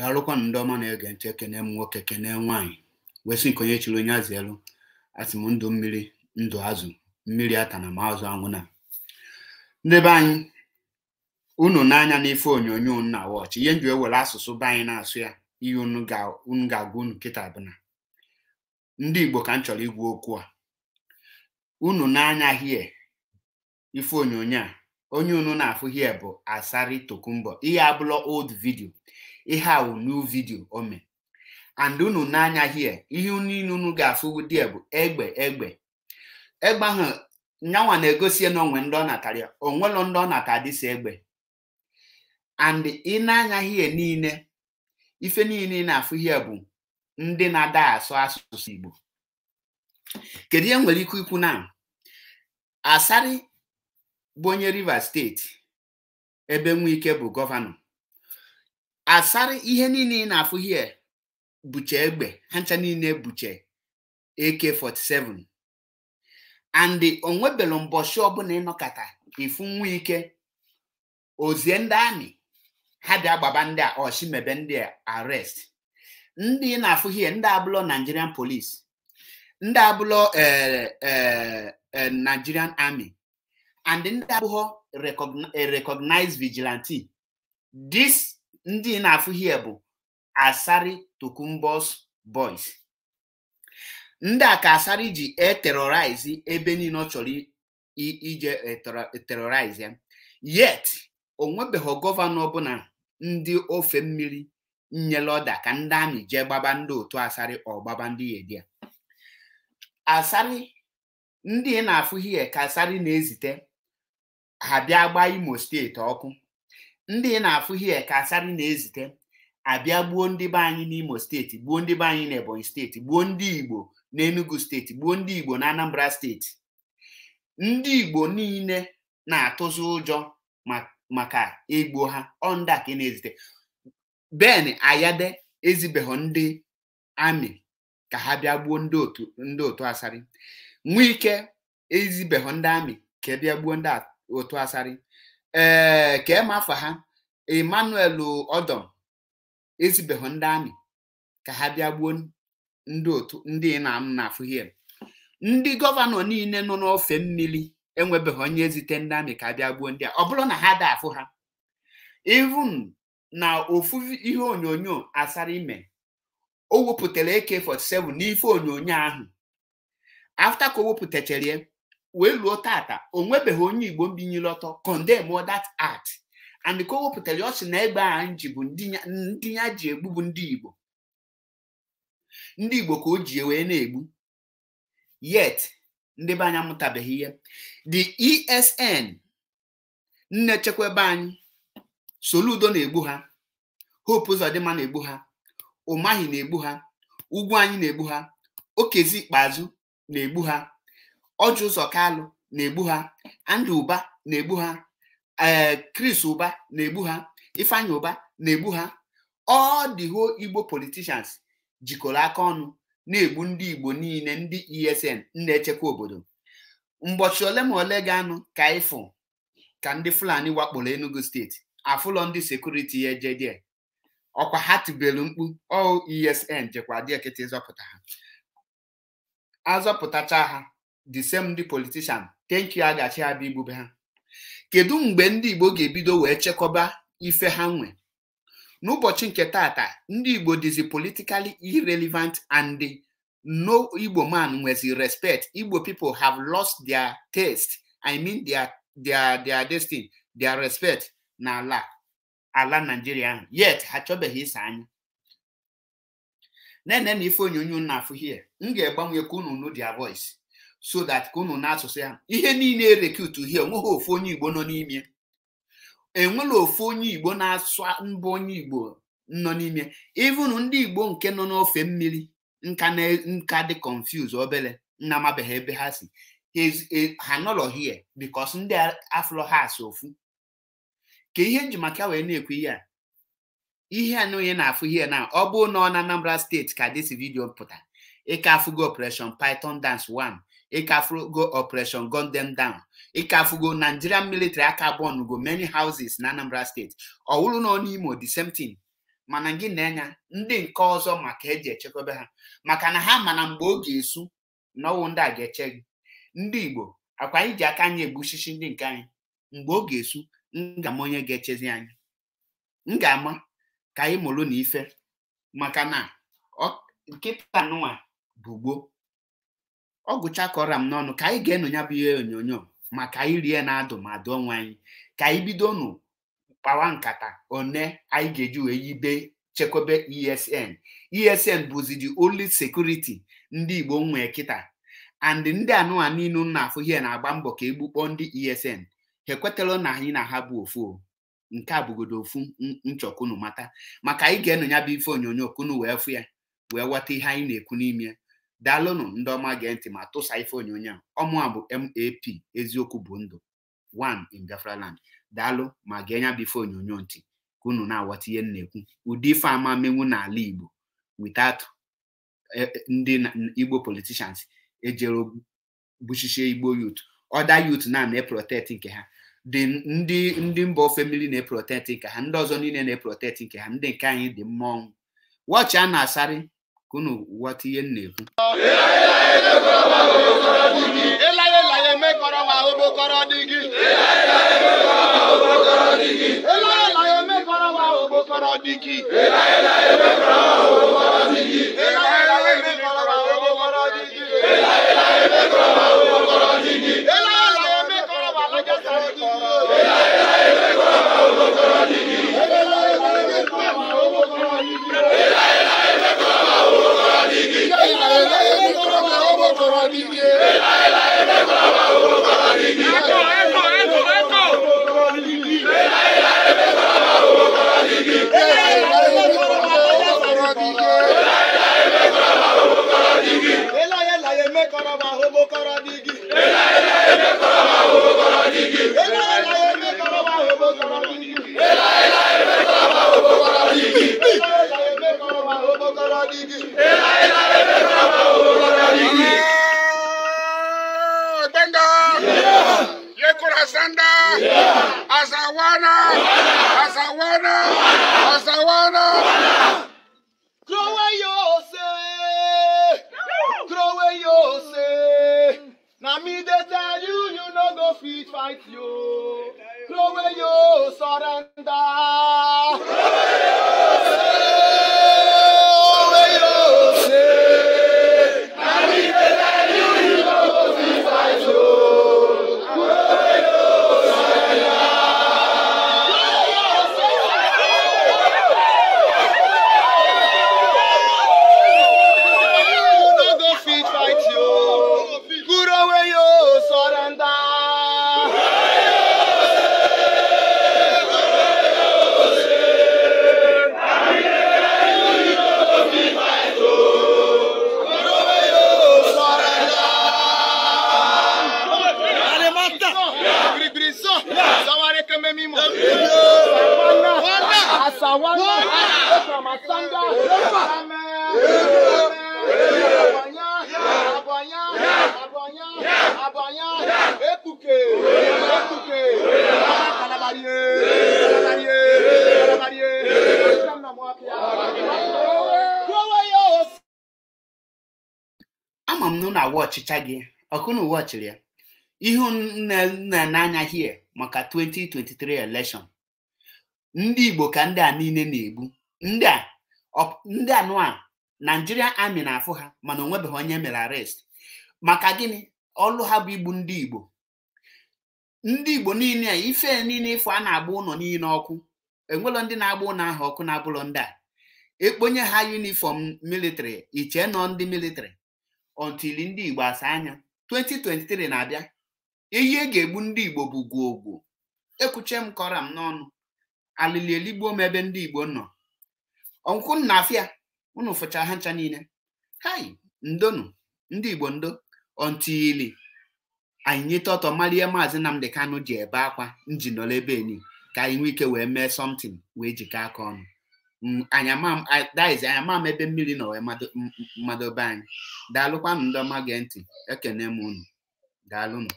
daalụkwanụ ndị ọma na-ege ntị ekene m nwoke kene nwaanyị wesị nke onye chiri onye azụ elu asị m ndụ mmiri ndụ azụ mmiri ata na azụ anwụna ndị be anyị unu n'anya n'ife onyonyo na wọchị ihe e ewere asụsụ be anyị na-asụ ya ihe unu ga-agwa unu nkịta bụ ndị igbo ka m chọrọ igwu okwu a unu n'anya hie ife onyonyo a onye unu na-afụ hie bụ asari tokumbo ihe abụla old vidio ihe a new video ome. and unu n'anya hie ihe niile unu ga-afụ die bụ egbe egbe egbe ahụ nyanwa na-egosie na onwe ndị ọ natara ya onwelo ndị ọ nata dịsi egbe and ị na-anya hie niile ife niile na-afụ hie bụ ndị na-ada asụ asụsụ Igbo kedu ihe nwere ike ikwu na Asari bụ onye Rivers steeti ebe ike bụ gọvanọ asarị ihe niile ị na-afụ hie buche egbe ha ncha niile buche AK47 and onwebelu mbọchị ọbụla ịnọkata ifu nwa ike ozie ndị amị ha dị agbaba ndị a mebe ndị a arrest ndị ị na-afụ hie ndị abụlọ Nigerian police ndị abụlọ e, e, e, Nigerian army and ndị abụghọ recognize vigilante this ndị na-afụ bụ Asari Tokumbos Boys ndị a ka Asari ji eterorize ebe niile ọ chọrọ ije e e terrorize ya yet onwebeghị gọvanọ na ndị ofe mmiri nyere ọda ka ndị amị jee gbaba ndị otu Asari ọgbaba ndị yedia Asari ndị na-afụ hie ka Asari na-ezite ha bịa gbaa Imo steeti ọkụ ndị na-afụ hie ka Asari na-ezite abịa gbuo ndị be anyị n'Imo steeti gbuo ndị be anyị n'Ebonyi steeti gbuo ndị Igbo n'Enugu steeti gbuo ndị Igbo na Anambra steeti ndị Igbo niile na-atụzi ụjọ maka egbo ha ọnda ka na-ezite Ben Ayade ezibeghọ ndị amị ka ha bịa gbuo ndị otu Asari Nwike ezibeghọ ndị amị ka e bịa gbuo ndị otu Asari ee eh, ka ema afa ha emmanuel ọdọm ezibeghị ndị amị ka ha bịa gbuo ndị otu ndị na m na-afụ ndị gọvanọ niile nọ n'ofe mmiri enwebeghị onye ezite ndị amị ka bịa gbuo ndị a ọ bụrụ na ha da afụ ha even na ofu ihe onyonyo asara ime o wepụtara AK47 n'ife onyonyo ahụ afta ka o wepụtachara wee luo tata o nwebeghị onye igbo mbinyere ọtọ condemn that act and ka o wepụtara ọ sị na egbe a ji bụ ndị ya ji egbu bụ ndị igbo ndị igbo ka o ji wee na-egbu yet ndị be anya amụtabeghị ihe the esn nne chekwa ebe anyị soludo na-egbu ha hope ụzọdịmma na-egbu ha ụmahi na-egbu ha ugwu anyị na-egbu ha okezi ikpeazụ na-egbu ha ọchụ ụzọ kalụ na-egbu ha andị ụba na-egbu ha ee eh, kris ụba na-egbu ha ifeanya ụba na-egbu ha ọ the igbo politishans jikọrọ aka ọnụ na-egbu ndị igbo niile ndị esn na-echekwa obodo mgbochi ole ma ole ga-anụ ka ịfụ ka ndị fulani wakporo enugu steeti afụlọ ndị sekuriti ya ọkwa ha tibelu mkpu o oh, esn jekwa dịekịta ịzọpụta azọpụtacha ha the same ndị politician thank you agachi igbube ha kedu mgbe ndị igbo ga-ebido wee chekọba ife ha nwe n'ụbọchị nke tata ndị igbo dizi politically irrelevant and no igbo man nwezi respect igbo pipo have lost their taste i mean their their their destiny their respect na ala nigeria ahụ yet ha chọbeghị anya na-ene na ife onyonyo na afụ hie m ga-egbanwe ka unu their voice so that ka ụnụ na-asụsụ ya ihe niile e erekutu hie onweghị ofu onye igbo nọ n'ime enwere ofu onye igbo na-asụ mbụ onye igbo nọ n'ime even ndị igbo nke nọ n'ofe mmiri nka na nka dị confuse obere nna amabeghị ebe ha si ha nọrọ hie bikos ndị afro ha asụ ofu ka ihe nji maka wee na ekwe ihe a ihe a onye na-afụ ihe na ọ bụ na ọ na Anambra steeti ka dịsi vidiyo pụta ịka afụgo operation python dance 1 ịkafugo operation gun them down ịkafugo nigerian military aka bọnugo many houses na anambra steeti ọwụrụ nọ na n'imo the same thing mana gị na-enya ndị nke ọzọ maka eji echekwebe ha maka na ha mana mgbe ga esu n'ọnwụ ndị a ga-eche gị ndị igbo akwa anyị ji aka anyị egbuchichi ndị nke anyị mgbe oge esu ngama onye ga-echezi anyị m ga-ama ka anyị mụrụ na ife maka na nkịta nụwa bụ gboo ọ gụchakọrọ m n'ọnụ ka anyị ga-enụ ya bụ ihe onyonyo maka ka anyị rie na-adụ ma onwe anyị ka anyị bido nụ kpawa nkata one anyị ga-eji wee yibe chekwebe esn esn bụzi the only security ndị igbo nwee kịta and ndị anụwa niile na-afụ ihe na-agba mbọ ka egbukpọ ndị esn ha ekwetala na anyị na ha bụ ofu nke a bụgodo ofu nchọkunu mata maka anyị ga-enụ ya bụ ife onyonyo kunu wee fụ ya wee ghọta ihe anyị na-ekwu n'ime daalụnụ ndị ọma gee ntị ma tụsa ife onyonyo a ọmụ a bụ map eziokwu bụ ndụ one in daalụ ma gee nya bụ ife onyonyo ntị ka unu na awata ihe na-ekwu ụdị ife ama menwu n'ala Igbo witat e, e, ndị Igbo politishans ejere gbuchichie Igbo yut ọda youth na na-eprotect nke ha dị ndị ndị mba ofe mmiri na-eprotect nke ha ndị ọzọ niile na-eprotect nke ha ndị nke anyị dị mmọnwụ wọchị a na-asarị kono waati ye ne kun. elaye Ela mɛ kɔrɔ wa o b'o Ela digi. elaye laye mɛ kɔrɔ Ela o b'o kɔrɔ digi. elaye Ela mɛ kɔrɔ wa o b'o kɔrɔ digi. elaye laye mɛ kɔrɔ wa o b'o kɔrɔ digi. நீங்க throw away your say, throw away your say. Now me dey tell you, you no go fit fight you, throw away your surrender! Krowe yo! ememe imo ekpuke ama m na ụlọ ọchịcha gị ọkụ na uwe ọchịrị ya ihu na-ene anya hie maka 2023 election ndị Igbo ka ndị a niile na-egbu ndị a ndị anụa Nigerian amị na-afụ ha mana onwebeghị onye mere arrest maka gịnị ọlụ ha bụ igbu ndị Igbo ndị Igbo niile a ife niile ịfụ a na-agba ụlọ niile ọkụ enwelọ ndị na-agba ụlọ ahụ ọkụ na-abụlọ ndị a ekponye ha yunifọm militịrị iche nọ ndị militịrị until ndị Igbo asa anya 2023 na-abịa ehi e ga-egbu ndị Igbo bụ gwogwo ekwuche m kọra m n'ọnụ alili eligbuo m ebe ndị Igbo nọ ọnkwụ nna afia ụnụ fụcha ha ncha niile hai ndonu ndị Igbo ndo ili. anyị nyeta ọtọ malie maazị Nnamdị Kanụ ji ebe akwa nji nọrọ ebe enyi ka anyị nwee ike wee mee somtin wee jikọ aka ọnụ anyamam ebe mmiri na wee mmadobe anyị daalụkwanụ ndị ọma gee ntị ekene m unu daalụnụ